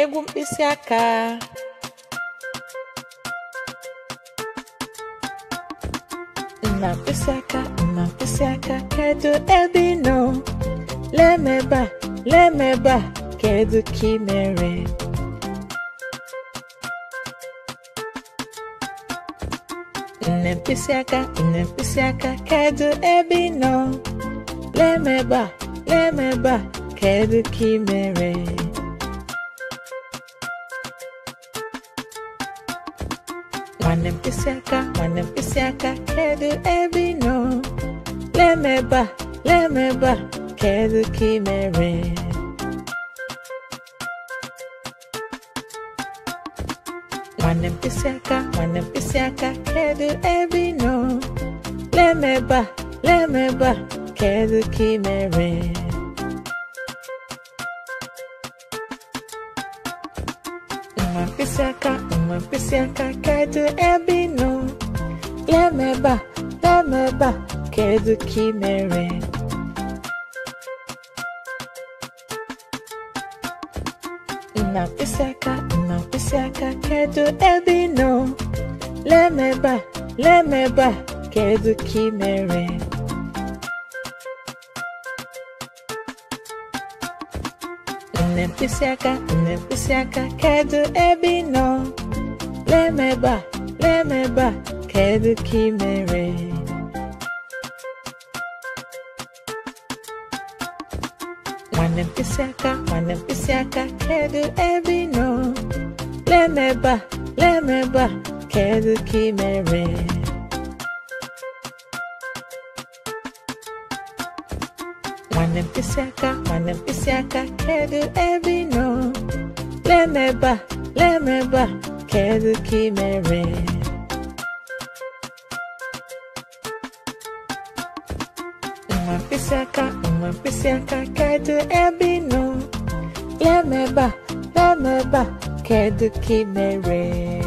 egwu mkpịsị aka nna mkpịsị aka nna mkpịsị aka kedu ebe ị nọ lemebe a lemebe a kedu ka ị mere nne mkpịsị aka nne mkpịsị aka kedu ebe ị nọ a a kedu ka ị mere nwanne m mkpịsị aka nwanne m mkpịsị aka kedu ebe nọ lemeba lemeba kedu ka ị mere nwanne m mkpịsị aka nwanne m mkpịsị aka kedu ebe nọ lemeba lemeba kedu ka ị mere uma pisseca, uma pisseca, kaydı é ebinu. Lemeba, lemeba, que é kimere. Uma pisseca, uma pisseca, kaydı é ebinu. Lemeba, lemeba, que kimere. Nempisiaka, nempisiaka, kedu ebe nọ? Lemeba, lemeba, kedu ka ị mere? Nwanne mkpisiaka, nwanne mkpisiaka, kedu ebe ị nọ? Lemeba, lemeba, kedu ka ị mere? Wanampisaka, Wanampisaka, quero Evino. Lemeba, Lemeba, quero Kimere. Uma pisseca, uma pisseca, quero Evino. Lemeba, Lemeba, quero Kimere.